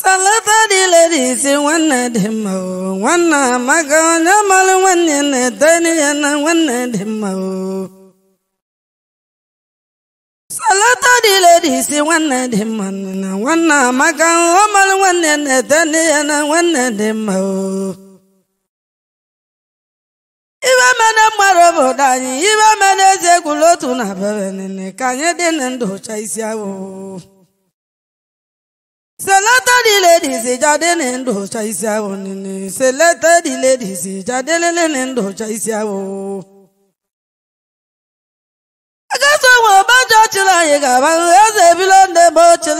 salata dị lere ise nwanne dị mma o nwanne amaka onye mara nwanne na ete na nwanne dị mma o salata dị nwanne dị mma na onye nwanne na-etene na nwanne dị mma o ibe mene mmadụ obodo anyị iwe mene eze egwulotu na bebe nene ka anyị dị na ndụ ụcha isi awụ Seleta di ladies jáde ní ndò ọ̀chà isi awọ Seleta ladies isi awọ. Agasa nwe ọbajọ chịrị anyị gaba eze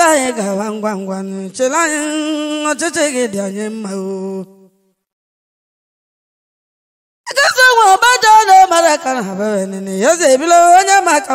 anyị ngwa ngwa chịrị ọchịchị gị dị anyị mma o. na-emere ka na-abịa eze onye ma aka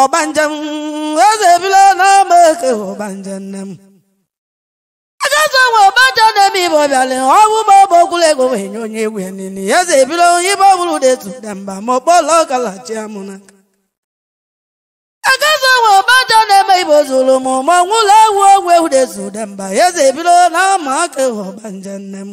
ọbanjem eze ebila n'ama eke ọbanjem nne m ajọsọ nwe ọbanja na-eme ibe ọbịalị ọgwụ ma ọ bụ okwụla ego wee nye onye egwu ya eze ebila onye ibe ọbụrụ detu dị mba ma ọkpọla ọkalachi amụna agazọ nwe ọbanja na-eme ibe ozuru m ma ọnwụla ewu ogwu ewu detu dị mba eze ebila n'ama eke ọbanja nne m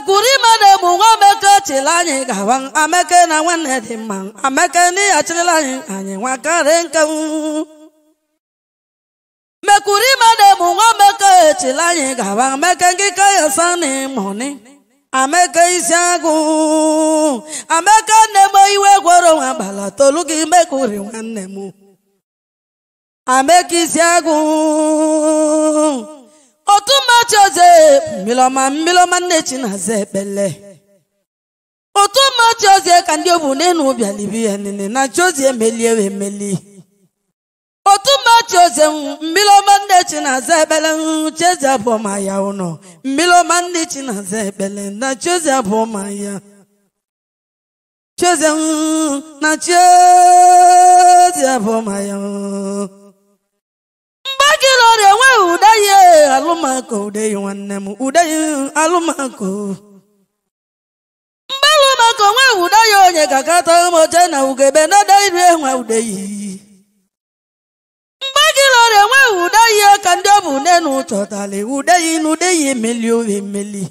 ekwuru ime na-egbu nwa ameke chịrị anyị gawa ameke na nwanne dị mma ameke na ya chịrịla anyị anyị nwa karị nke mekwuru ime na-egbu nwa ameke chịrị anyị gawa ameke ngịka ya sani mọni ameke isi agụ ameke na m iwe gwọrọ nwa agbala tolu gị mekwuri nwanne m ameke isi agụ otu otumachize mmilọma mmilọma nne chinaza ekpele otumachize ka ndị obu n'enu bịalibi ya nene na chiozi emelie wee meli otumachize mmilọma nne chinaza ekpele chiozi abụọma ya ụnọ mmilọma nne chinaza ekpele na chiozi abụọma ya chiozi na chiozi abụọma ya ịlọrị enwe ude ya alụmako ude ya nwanne m ude ya alụmako mbalụmako nwe ude ya onye ka kata ụmụche na ugebe nada iru enwe ude ya mgbe gị lọrị enwe ude ya ka ndị ọbụ nne na ụchọtali ude ya n'ude ya emeli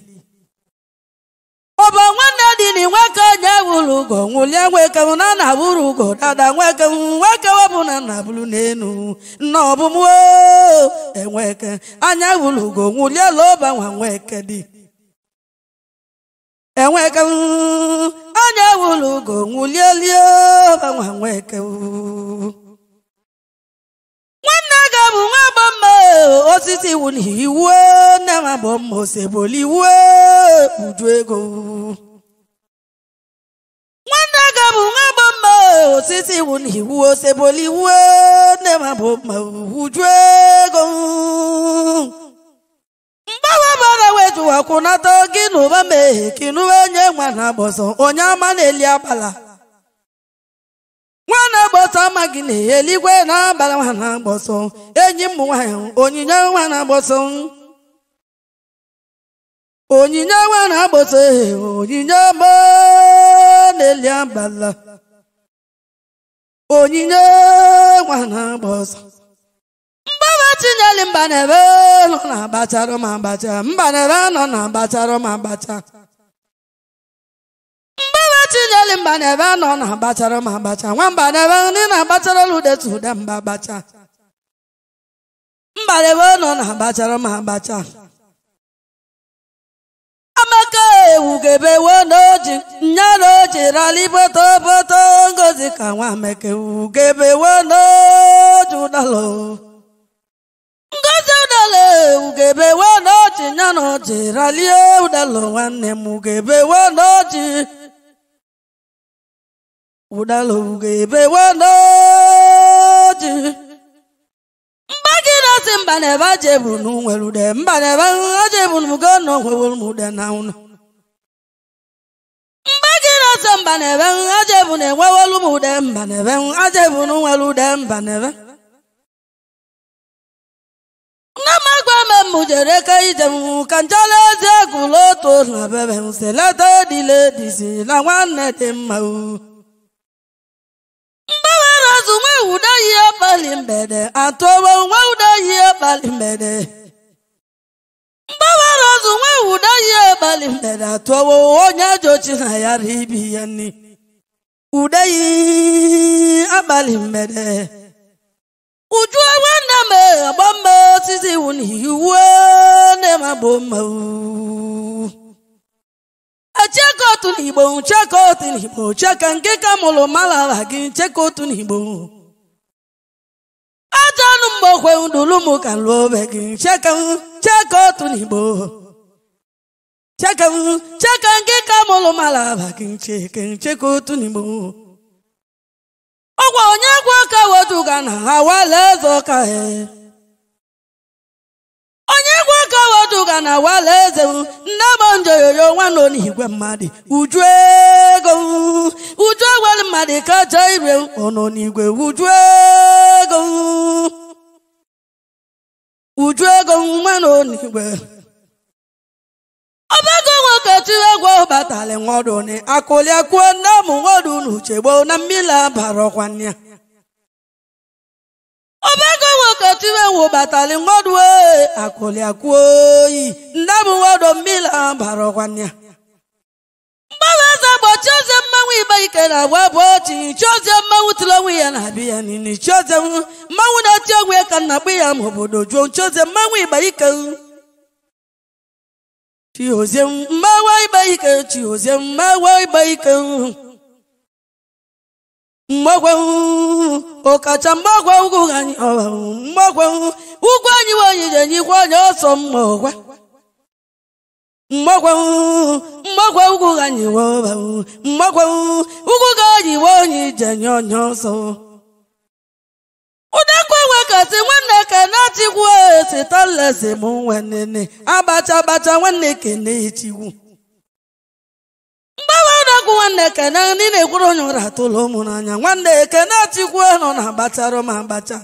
nwanne dị na inwe ya nweke m na na bụrụ ugo dada nweke m nweke webụ na nna bụrụ n'elu nna ọbụmụo enweke anya wụrụ ugo nwụliela ụba nwa nweke dị enweke m anya wụrụ ugo nwụliela ụba nwa nweke nwanne ga bụ nwa agba mma osisi na iwu nne ma bụ mma oseboli iwu uju ego Chiaga bụ nwa bụ mma osisi iwu na iwu osebola iwu nne ma bụ mma uju ego mgbawa bara wejuwakwunata gị na ụba mee kinuwe nye nwa na agbọsọ onye ama na-eli agbala nwa na-agbọsọ ama gị na eligwe na-abala nwa na-agbọsọ enyi m nwanyị onyinye nwa na-agbọsọ onyinye nwa na-agbọsọ onyinye mgbaa na-eli agbala onyinye nwa na-agba ọsọ mgbawa tinyeli mba na-ebe nọ na agbacharụ ma agbacha mba na-ebe nọ na agbacharụ ma agbacha mgbawa tinyeli mba na-ebe nọ na agbacharụ ma agbacha nwamba na-ebe ndị na-agbacharụla udetu ude mba agbacha mba na-ebe nọ na agbacharụ ma agbacha amaka ewu ga-ebe wee n'oji nyalo chiralibotooboto ngozi ka nwameke ugebewenojudalo ngozi udalo ugebewenoji nyana oji ralie udalo nwanne m ugebewenoji udalo ugebewenoji mba gị na-asị mba na ebe ajebu na nwere ude mba na ebe ajebu na ugo na onwewere m ude na ụnụ aja mba na-ebe aja ebu na-enwewelu m ude mba na-ebe aja ebu na nwere ude mba na-ebe m agwa ka ije m ka otu na na nwanne mgbede atụwo nwe ude yi mgbede azụ nwa ụda ya abalị mere atụwo onye ajọ chi na ya ibi ya nri ude yi abalị mere uju nwanne m agba mma osisi iwu na iwu nne m abụ mma achaka otu n'igbo nchaka otu n'igbo cheka nke ka mụrụ malara gị nchaka otu n'igbo ajọ anụ mgbokwe ndulu m ka lụọ obe gị nchaka otu n'igbo cheka cheka nke ka mụlụ malaba kinchekincheka otu n'igbo ọgwa onye gwa ka weduga na awala eze ọka e. onye gwa ka weduga na awala eze nne bụ njoyoyo nwanne n'igwe mmadụ uju ego uju ewere mmadụ kacha ire ọnọ igwe uju ego uju ego nwanne n'igwe ọbago nwoke tiri egwu nwọdụ nwaduni akụliakuo nne ụmụ nwọdụ n'uche gboo na mmiri abara ọkwa ya ọbago nwoke tiri egwu batali nwadụ e, ike na agwa bụ ochi chiozie mmanwụ tụrụ onwe ya na-abịa ya na-eti onwe ka nna kpụ ya ma obodo juo chiozie mmanwụ igbe ike Chiozem mawai baika chiozem mawai baika mmọgwe ọkacha mmọgwe ugwu anyị ọwa mmọgwe ugwu anyị nwanyị ga-enyekwa onye ọsọ mmọgwa mmọgwe mmọgwe ugwu anyị ọwa mmọgwe ugwu ga anyị nwe onye ije nye onye ọsọ ụdekwu enwekati nwanne kene chikwu nwanne abacha abacha kene kene ndị na-ekwuru onye ụra tụlụ ụmụ n'anya nwanne kene chikwu e nọ na abacha m abacha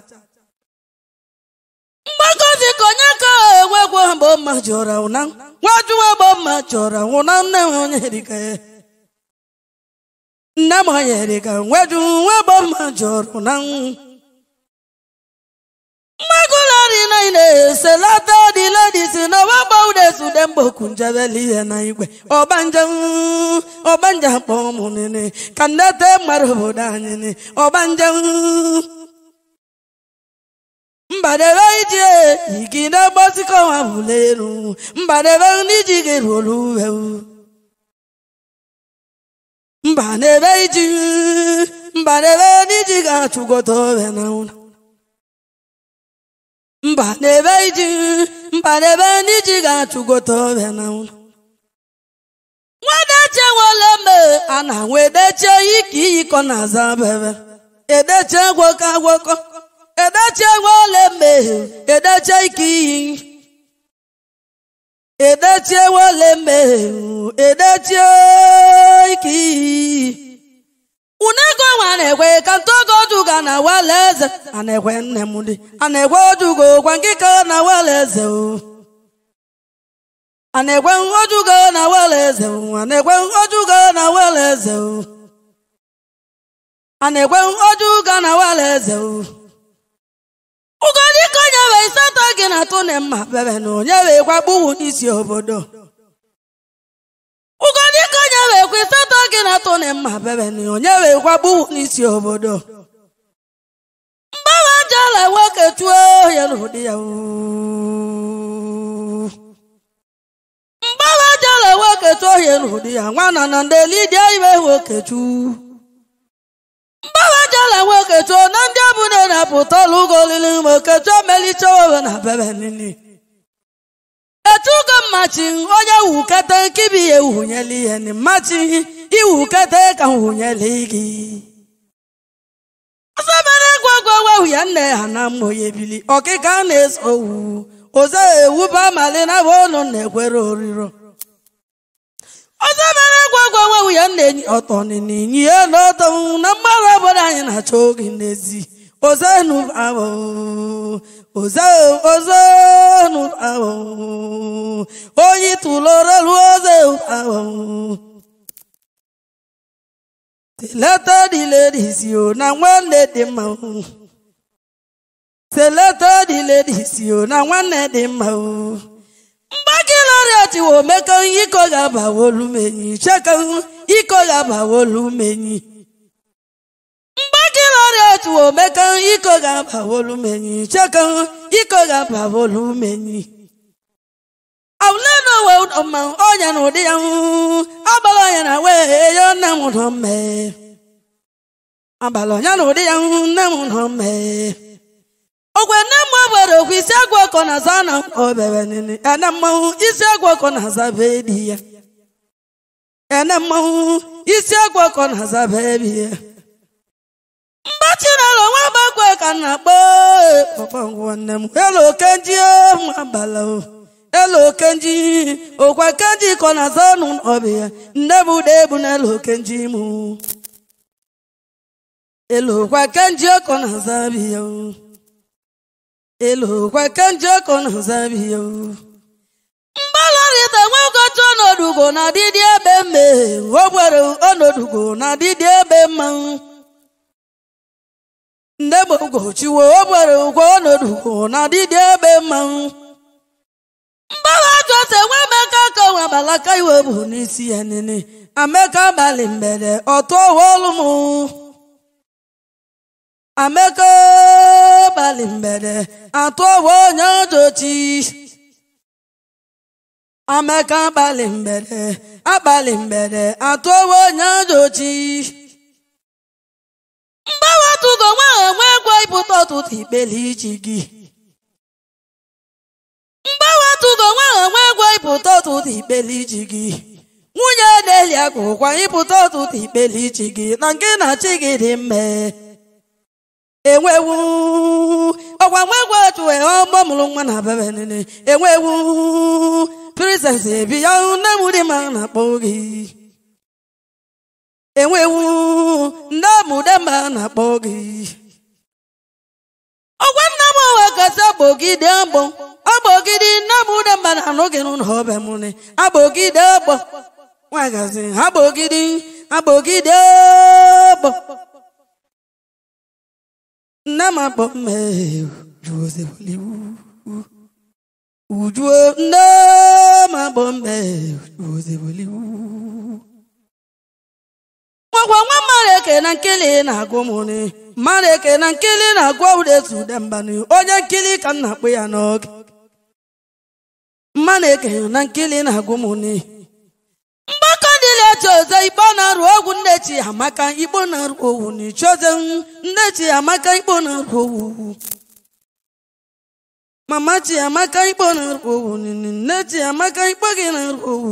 mgbakọ ka onye ka enwekwu mgbe mma ji ọra ụna nwajuwe gbo mma ji nne m onye erika ya nne m onye nweju nwe mma ji mmagụlari na-eselata dị ledis na ọgbagba udesde mgbokunjebela ihe na igwe ọbanje ọbanje akpọ kpọmụnene ka ndete mmadụ obodo anyị ọbanje mbadebe ije igide gbozikọwa bụlelu mbadebe ndị ji gị ruolu uwe mbanebe iji mbadebe ndị ji ga-achụgota owe na ụlọ mba n'ebe iji mba n'ebe ndị ga-achụgote ọbịa na nwedeche nwere mme a na nwedeche ike iyikọ na aza bebe edeche agwọkọ edeche nwere edeche ike iyi edeche nwere edeche ike iyi unego nwa na-ekwe ka ntogoduga na wele eze a na-ekwe nne m dị a na-ekwe odugo gwa nke ka na wele eze o a na-ekwe odugo na wele eze o a na-ekwe odugo na wele eze o a na-ekwe odugo na wele eze o ugodike onye we isatọ gị na atụ na mma bebe na onye we gwagbuwu isi obodo wekwa itatọ gị e e na na onye wekwa gbuwu n'isi obodo mgbagha jala nwoke tuo ya n'ụdị ya nwoke tuo ya n'ụdị nwana na ndị lidia ibe nwoke tuo mgbagha jala na ndị abụ na-apụta ụlọ ụgọ olili ma oketu emelicha owe na bebe etugo mmachi onye wukete nkibi ya ewunyela ihe ni mmachi iwukete ka nwunyela gị asabere gwagwa wehu ya nne ha na mmụ ya ebili ọkịka na-eso owu oze ewuba amali na bụ ọnụ na-ekwere oriro ọzọbere gwagwa wehu ya nne enyi ọtọ nini ya n'ọtọ na mgbarụ obodo anyị na-achọ oge n'ezi oze nu abụ ozeu ozonu awo oyi tuloro lu ozeu awo seleta dị mma o na nwanne dị mma mgbake lọrịat wo mekọ iko ga-abawolu menyi chekọ iko ga-abawolu menyi tuome kan iko ga-abawolu menyi chekan iko ga-abawolu menyi awulena owe ụdọmma ọnya na ụdị ya abalị ọnya na wee yo nne m ụdọmme abalị ọnya na ụdị ya nne m ụdọmme ogwe nne m obere okwu isi agwọ ọkọ na aza na obere nini ene mmanwụ isi agwọ ọkọ na aza bee di ya ene mmanwụ isi agwọ ọkọ na aza bee bi ya mba chinelo nwa gbakwe ka na-akpọ kpọkpọngwụ nne m elu okenji nwa e, abala elu okenji okwa kenji kọ na zanụ ọbịa nne m ụda ebu n'elu okenji mụ elu kwa kenji ọkọ na zabia elu kwa kenji ọkọ na ya zabia mgbalọrịta nwagotu ọnọdụgo na dịdị ebe mme o gwere ọnọdụgo na dịdị ebe mmanwụ nne m ugochiwo obere ụgwọ ọnọdụ na dịdị ebe mmanwụ mgbawa jose nwa emeka ka nwe abalaka iwe bụ n'isi ya nene ameka abalị mgbede ọtụ ọwaọlụ m ameka abalị mgbede atụ ọwa onye ojochi ameka abalị mgbede abalị mgbede atụ ọwa onye ojochi mgbanwe ọtụgo nwa ahụ enwe ego ịbụta ọtụtụ ikpele iji gị mgbanwe ọtụgo nwa ahụ enwe ego ịbụta ọtụtụ ikpele iji gị nwunye na-eli ego ịpụta ọtụtụ ikpele iji gị na nke na achị gị dị mme enwewu ọkwa nwa ego otu e, ọgbọ mụrụ nwa na bebe nene enwewu prizens ebi ya nne m dị ma na-akpọ gị enwewu ndị ọmụdema na-akpọ gị ọgwa nna m owe kasị agbogide agbọ agbogide nna m udemba na anụghị n'ụlọ ọbịa m ne agbogide agbọ nwagazi agbogide agbogide agbọ nne m akpọ mmejuzeboliwu ujuo nne m akpọ mmejuzeboliwu nwakwa nwa mmadụ eke na nkili na-agụ mụnị mara eke na nkili na-agụ ụdetu udembanị onye nkili ka m na-akpụ ya n'oge mara eke na nkili na-agụ mụnị mgbakọ dịla chioze ikpo na-arụ ogwu nnechi amaka ikpo na-arụ owu na ichioze amaka ikpo na-arụ owu mama chi amaka ikpo na-arụ owu nne chi amaka ikpo gị na-arụ owu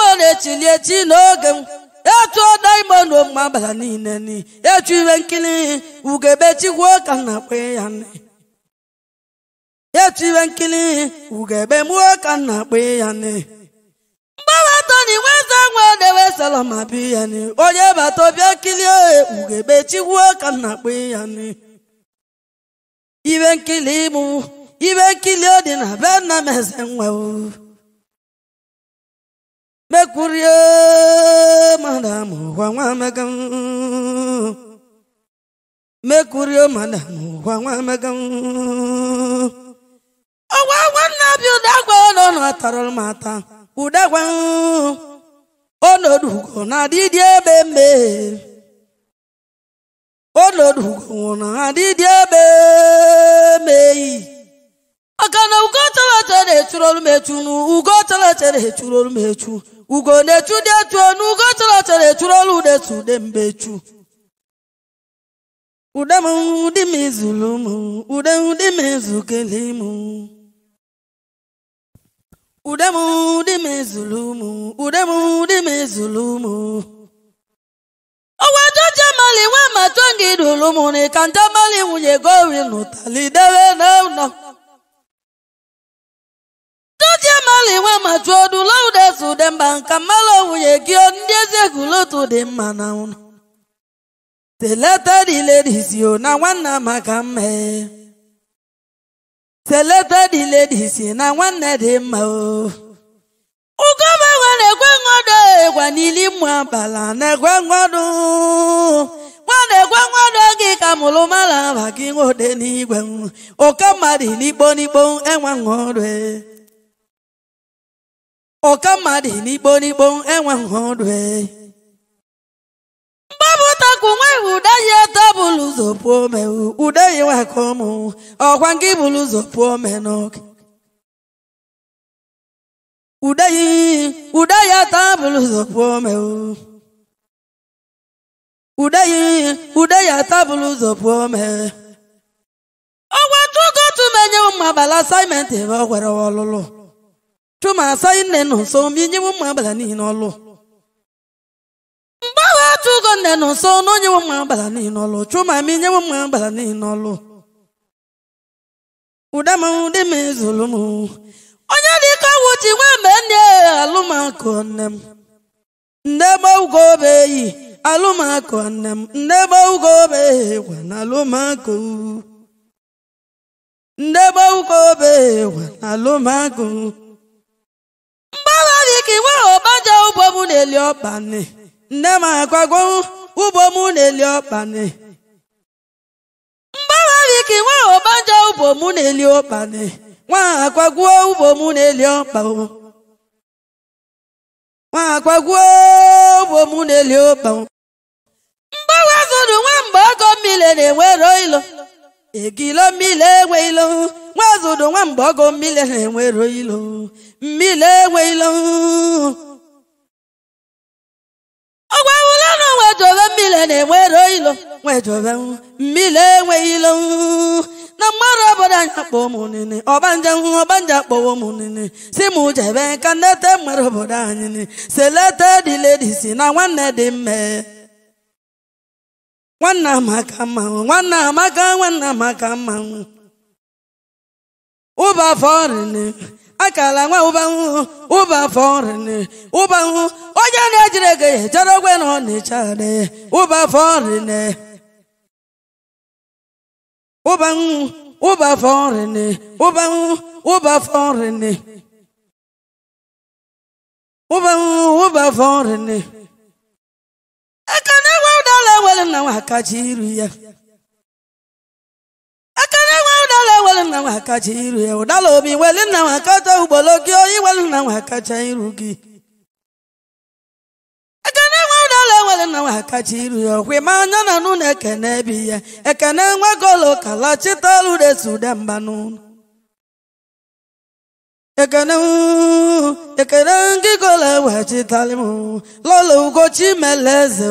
nwere chilieti n'oge m etu ọdaimonu ma abalị niile ni etu ihe nkiri ugebetigwuo ka m na-akpọ ya nne etu ihe nkiri ugebe mụọ ka m na-akpọ ya nne mgbawa na toni nweze ma dewe ya ni onye bata bịa kilie ugebetigwuo ka m na-akpọ ya nne ihe nkiri mụ ihe nkiri dị na be nna m eze nwe mekurie madamu kwa nwa emeka mekurie madamu ọgwa agwa nna bi ụdagwa ọnụ atarụrụ m ata na adịdị ebe mbe ọkana ugo tolete na-echuru olu m echunu ugo tolete na-echuru olu m ugo na-echu dị etu onu ugo tolete na-echuru olu na-etu ude mbe echu ude m ụdị m izulu m ude ụdị m ezukele m ude m ụdị m ezulu m ude m ụdị m ezulu m owe joje mali nwe matongi dulu m na ikanta mali nwunye gori n'ụtali debe na ụnọ amaliwe ma jụọ dula ude zude mba nka mmalụ owuye gị ndị ezi lotu dị mma na ụnụ teleta diledisio na nwanna maka mma teleta diledisi na nwanne dị mma o ugoma na-ekwe nwodo egwa n'ili mmụ abala na ekwe nwodo nwana ekwe nwodo gị ka mụrụ mara aba gị nwode n'igwe ụka mmadụ n'ikpo n'ikpo enwe e. ọka mmadụ n'ikpo n'ikpo enweghị ọdụ e. mgbapụtakwu nweghị ude ya eto bụlụ ụzọ pụọ ome ude ya nwaka ọmụ ọkwa nke bụlụ ụzọ pụọ ome n'oge ude ya ude ya eto bụlụ ụzọ pụọ ome ude ya ude ya eto bụlụ ụzọ pụọ ome ọgwa tugotu menye ụmụ abala asaịmentị ebe ọ gwere ọlụlụ chuma asaghị nne nụ nso ma inyewe ụmụ abala n'ihi n'ọlụ mgbe atụ ụgọ nne nụ nso na onyewe ụmụ agbada n'ihi n'ọlụ chuma ma inyewe ụmụ agbada n'ihi n'ọlụ ụdama ụdị m ezulu m onye dị ka ọgwụ ji nwee mgbe nne alụmakụ nne m nne gba ugo obe eyi alụmakụ nne m nne gba ugo obe eyi gwa na alụmakụ nne gba ugo obe eyi gwa na alụmakụ nwe ọbaja ụbọ m na-eli ọkpani nne m ka nwe ọbaja ụbọ m na-eli ọkpani nwa agwagwo ụbọ m na-eli nwa na-eli na-enwero ilo egilo enwe ilo nwa zụrụ ọgọ na-enwero ilo mmiri enweghịlo ọgwa wụla na nwedobe mmiri na-enwero ilo nwedobe mmiri enweghị ilo na mmadụ obodo anyị akpọ ụmụnne ọbanja hụ ọbanja akpọwa ụmụnne si m jebe ka nnete mmadụ obodo anyị selete dị si na nwanne dị mme Nwanna amaka mmanwụ nwanna amaka nwanna amaka mmanwụ ụbafọ rịnị akala nwa ụbanwụ ụba afọ nri onye na-ejiri ego ya echere ogwe na ọnịcha nị ụba afọ nri nị ụbanwụ ụba afọ nri nị ụbanwụ ụba afọ nri ụba afọ nri nị aka na-enwe ụdala nwere nna nwa akachi iru ya na nwa kacha iru ya ụdala obi nna nwa kacha gị onye nna nwa kacha iru gị ekene nwa ụdala weli nna nwa kacha ya ọkwa ma anya na nụ na ekene bi ya ekene nwa golo kala chitalu desu de mba n'ụlọ ekene ekene ngị golo lọla mele eze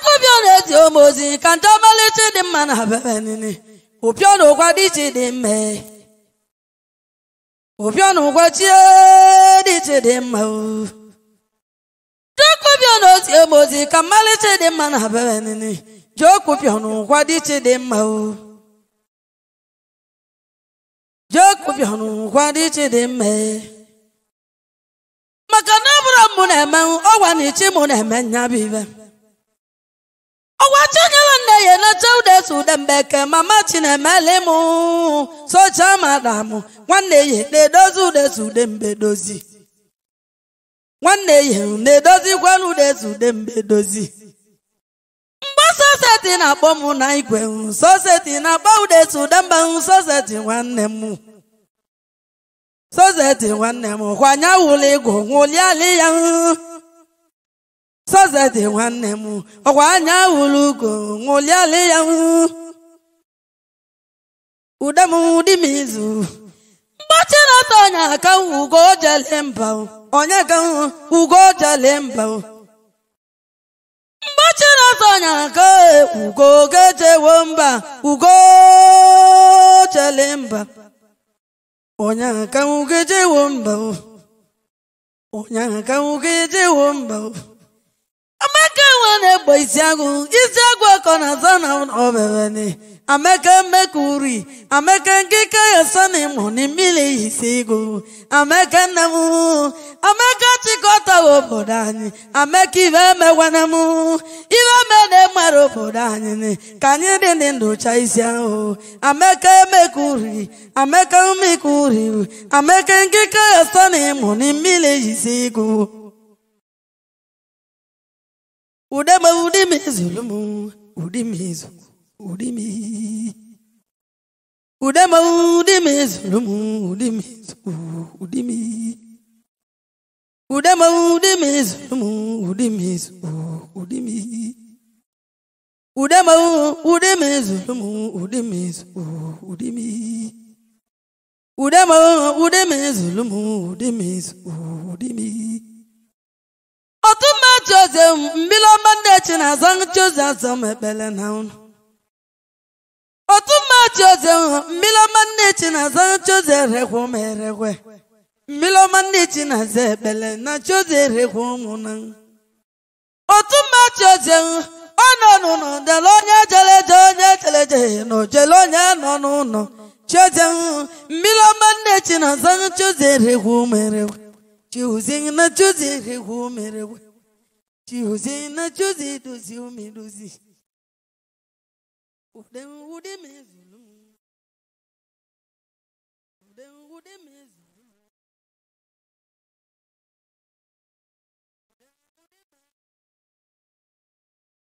akụbịa na-eti eji ozi ka ndị ọmalịcha dị mma na bebe nini ụpịọ na dị iche dị mma ụpịọ na ụgwa chie dị iche dị mma ndị akụbịa na-eti eji ozi ka mmalịcha dị mma na bebe nini ji okụpịọ na dị iche dị mma ji okụpịọ na ụgwa dị iche dị mma maka na ọ bụrụ mụ na-eme ọgwa na ichi mụ na-eme nya bụ ibe ọgwa chinyere ya eneche udeso mama chinemelim madam nwanne nwanne ya edozi dozi mgbe soseti na-akpọ mụ na igwe soseti na-akpọ udeso esu soseti nwanne m soseti nwanne m kwanye wụli ya dị nwanne m ọkwa anya wụrụ ugo ṅụlịalị ya ude m dị m izu mgbachi na-atọ onye aka ugo jele mba onye ka ugo jele mba mgbachi na-atọ onye aka ugo gejewo mba ugo jele mba onye aka ugejewo mba onye aka ugejewo mba amaka enwe na-egbo isi isiagụ ọkọ na aza na obebeni amaka mmeka uri amaka nkịka ya sani mụ na mmiri isi igụ amaka nne m amaka chịkọta obodo anyị amaka ibe emegwana m ibe na-emere obodo anyị ka anyị dị dị ndụcha isi ahụ amaka emeka uri amaka mmeka uri amaka nkịka ya sani mụ na mmiri isi igụ Udeme udimi zulumu udimi udimi Udeme udimi zulumu udimi udimi Udeme udimi zulumu udimi udimi Udeme udimi zulumu udimi udimi Udeme udimi zulumu udimi udimi ọtụma Jose mmiri ọma Ndị Echi na azọnụ Jose azọ m ekpele na ụnụ ọtụma Jose mmiri ọma Ndị Echi na azọnụ Jose erekwe m erekwe mmiri ọma Ndị Echi na azọ ekpele na Jose erekwe ụmụ na ọtụma Jose ọ nọ n'ụlọ dere onye jere eje onye jere eje na ojele onye nọ n'ụlọ Jose mmiri ọma Ndị Echi na azọnụ Jose erekwe ụmụ erekwe Choosing na choosing, who made Chiuzi na chiuzi dozi umi dozi. Udem udem ezu.